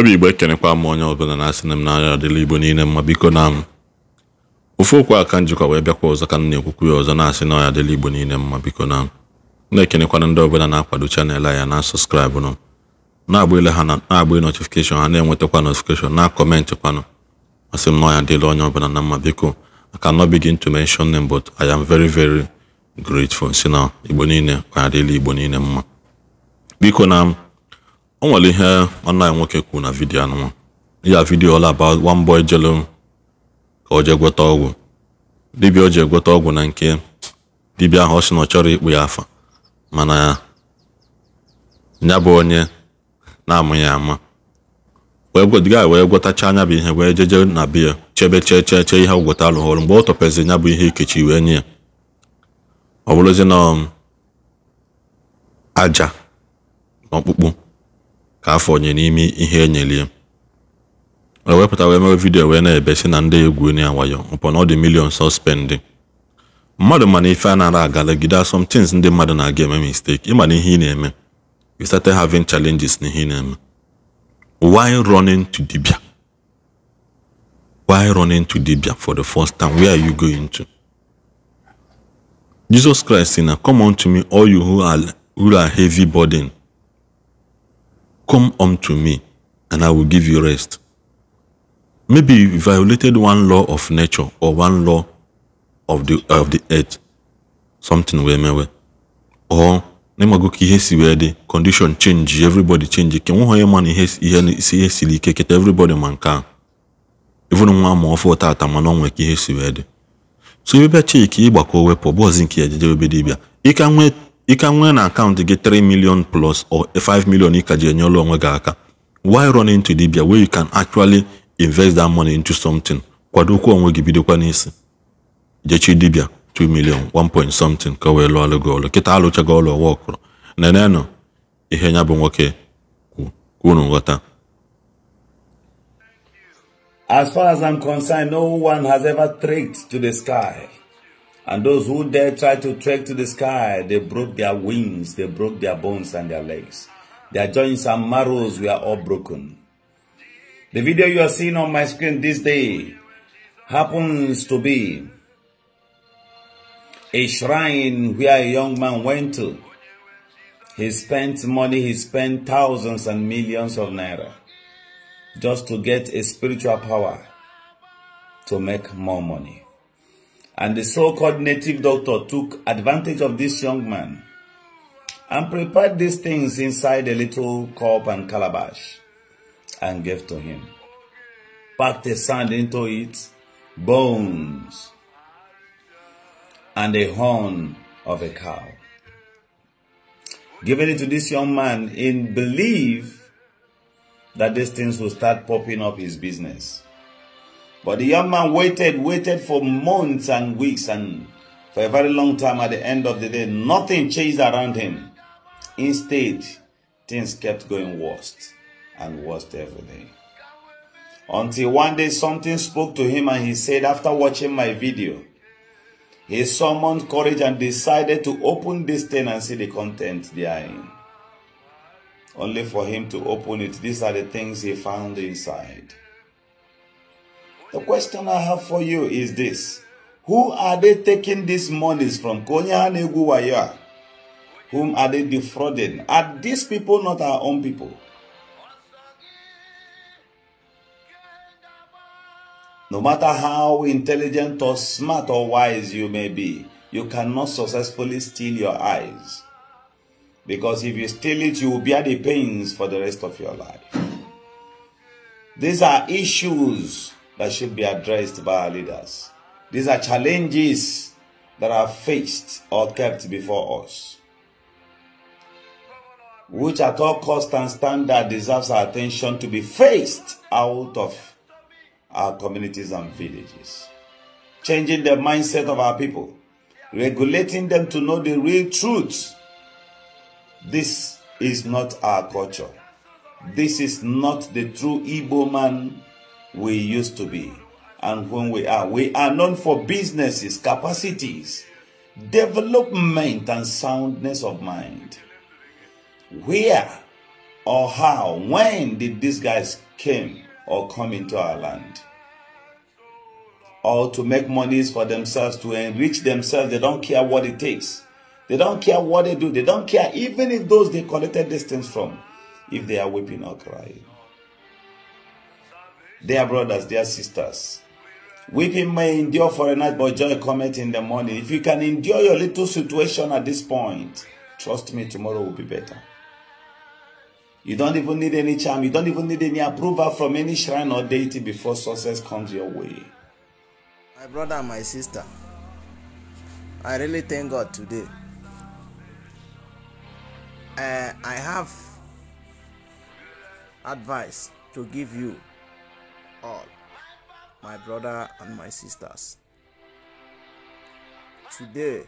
onwe igbe igbo ekenekwa m onye ọbụla na-asị na m n'anya adịla igbo niile mma biko na m ofu okwu a ka njikwa wee bịakwa ọzọ ka m na-ekwukwu ya ọzọ na-asị na ọ ya adịla igbo niile mma biko na m na-ekenekwana ndị ọbụla na-akwado chanel a ya na sọskraịbụ nụ na-agba ile ha na-agba notifikeshọn ha na-enwetakwa notifikeshọn na-akọmentị kwanụ masị m na ọ ya adịla onye ọbụla na mma biko aka no begin to mention them but I am veri very grateful si na igbo niile ka adịla igbo niile mma biko na m o nwere ihe nwanne anyị nwoke kwuru na vidiyo anụnwa ya vidiyo ọla aba one boy jelu ka o jee gweta ọgwụ dibịa o ji egweta ọgwụ na nke dibịa ahụ ọ sị na ọ chọrọ ikpu ya afa mana ya bụ onye na-amụ ya ama wee wee gwetacha anya bụ ihe wee jeje na biya chebe chee chee chee ihe gweta ọrụ mgbe ọ tọpezi ya bụ ihe ikechi wee nye ya ọ bụrụzi na um, aja na ọkpụkpụ ka afọ nye n'ime ihe enyelie O e wepụta wee mewe vidiyo wee na-ebe si na ndị egwu onye wayo mpọ na ọ dị milion sọspendị mmadụ mana ife a nara agalegide somtins ndị mmadụ na-aga eme mistake ịma na ihe ị na-eme you started having challenges na ihe ị na-eme why running to dibia why running to dibia for the first time where are you going to jesus christ si na come unto me all you who are, who are heavy burden Come unto me, and I will give you rest. Maybe you violated one law of nature or one law of the of the earth, something wee mewe. Or name ka ki hesi wee dị condition change everybody change ke nwụghọ onye ma hesi ihe si ihe siri ike everybody ma nke ahụ even nwa ma ọfụ tata mana ọ nwee ka ihe si wee dị so ebe bịa cheki ịgbakọ wepụ bọọzi nke ya jeje ebe dibịa ịka nwee ị ka nwee na akaụntụ gị 3 million plus or 5 million ị ka ji enyere onwe gị aka why run into dibia where you can actually invest that money into something kwadokwa onwe gị bidokwa n'isi jechi dibia 2 million 1 point something ka wee lụọlụ gị ọlụ kịta alụchago ọlụ ọwa ọkụrụ nenenụ ihe nya bụ nwoke kwu unu nghọta As far as I'm concerned, no one has ever tricked to the sky. And those who dare try to trek to the sky, they broke their wings, they broke their bones and their legs. Their joints and marrows were all broken. The video you are seeing on my screen this day happens to be a shrine where a young man went to. He spent money, he spent thousands and millions of naira just to get a spiritual power to make more money and the so-called native doctor took advantage of this young man and prepared these things inside a little cup and calabash and gave to him. Packed the sand into it, bones, and a horn of a cow. Giving it to this young man in belief that these things will start popping up his business. But the young man waited, waited for months and weeks and for a very long time at the end of the day, nothing changed around him. Instead, things kept going worse and worse every day. Until one day something spoke to him and he said, after watching my video, he summoned courage and decided to open this thing and see the content therein. Only for him to open it, these are the things he found inside. The question I have for you is this. Who are they taking these monies from? Konya Whom are they defrauding? Are these people not our own people? No matter how intelligent or smart or wise you may be, you cannot successfully steal your eyes. Because if you steal it, you will bear the pains for the rest of your life. These are issues that should be addressed by our leaders. These are challenges that are faced or kept before us, which at all cost and standard deserves our attention to be faced out of our communities and villages. Changing the mindset of our people, regulating them to know the real truth. This is not our culture. This is not the true Igbo man we used to be and when we are. We are known for businesses, capacities, development, and soundness of mind. Where or how, when did these guys came or come into our land? Or to make monies for themselves, to enrich themselves, they don't care what it takes. They don't care what they do. They don't care even if those they collected these things from, if they are weeping or crying. Their brothers, their sisters. Weeping may endure for a night, but joy cometh in the morning. If you can endure your little situation at this point, trust me, tomorrow will be better. You don't even need any charm. You don't even need any approval from any shrine or deity before success comes your way. My brother and my sister, I really thank God today. Uh, I have advice to give you all, my brother and my sisters. Today,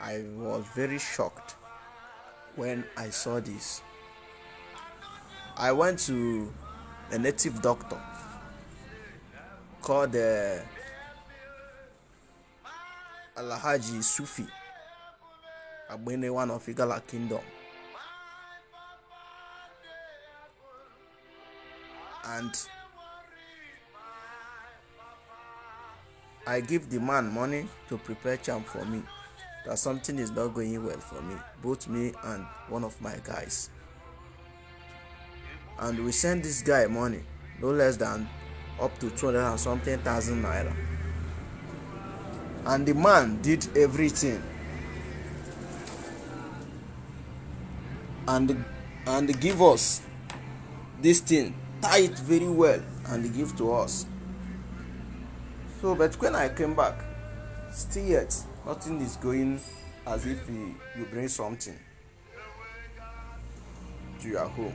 I was very shocked when I saw this. I went to a native doctor called uh, Alahaji Sufi Abene, one of Igala Kingdom. and I give the man money to prepare charm for me that something is not going well for me, both me and one of my guys. And we send this guy money, no less than up to 200 and something thousand naira. And the man did everything. And and give us this thing tithe very well and give to us. So, but when I came back, still yet, nothing is going as if you, you bring something to your home.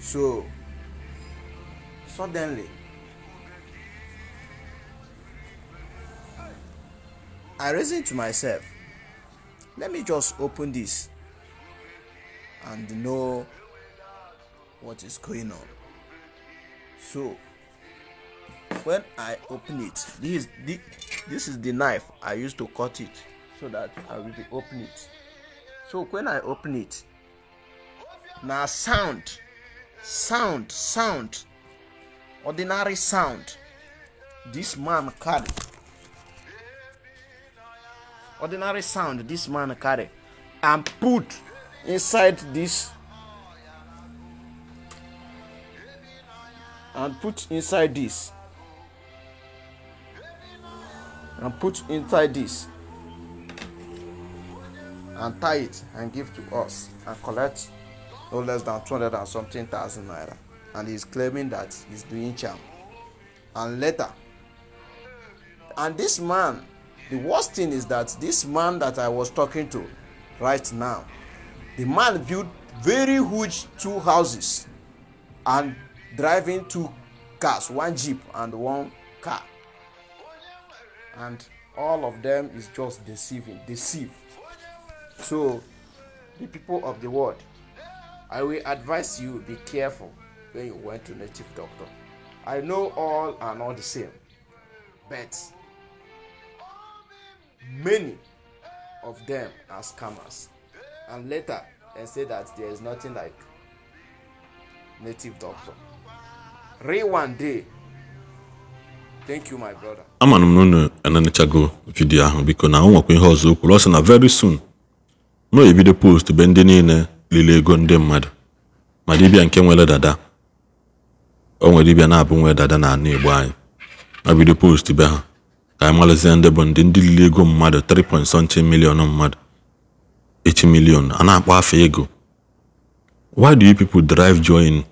So, suddenly, I reasoned to myself, let me just open this and know what is going on so when i open it this is this is the knife i use to cut it so that i will be open it so when i open it na sound sound sound ordinary sound this man carry ordinary sound this man carry and put inside this and put inside this and put inside this and tie it and give to us and collect no less than two hundred and something thousand naira and he's claiming that he's doing charm and later and this man the worst thing is that this man that i was talking to right now the man built very huge two houses and driving two cars one jeep and one car and all of them is just deceiving deceive so the people of the world i will advise you be careful when you went to native doctor i know all are not the same but many of them are scammers and later they say that there is nothing like native doctor ama Thank you my brother. Amana m enenichago vidiyo ahụ biko na ọ nwekwa ihe ọzọ okwu ọ sị na very soon m na-ebido post be ndị niile lile ego ndị mmadụ ma dibia nke nwere dada o nwere dibịa na-abụ nwere dada na ana igbo anyị ma bido post be ha ka anyị marazie ndị bụ ndị ndị lili ego mmadụ 3 point million mmadụ 8 million a na-akpọ afa ego why do you people drive join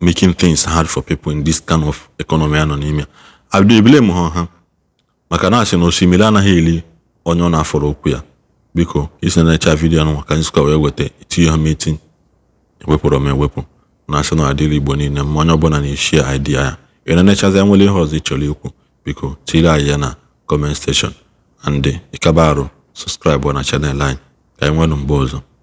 making things hard for people in this kind of economy anọ n'ime a bido ha ha maka na asị na osimiri anaghị eli onye ọ na-afọrọ okwu ya biko isi na-echa vidiyo nwa ka anyị sịkwa wee weta itinye ha meeting ewepụrụ m ewepụ na asị na igbo niile ma onye ọbụla na-eshi idea ya ina na-enechazi nwere ihe ọzọ ị chọrọ ikwu biko tinyere anyị ya na comment section ande ịkaba arụ sọskraịbụ na chanel anyị ka anyị nwere mgbe ọzọ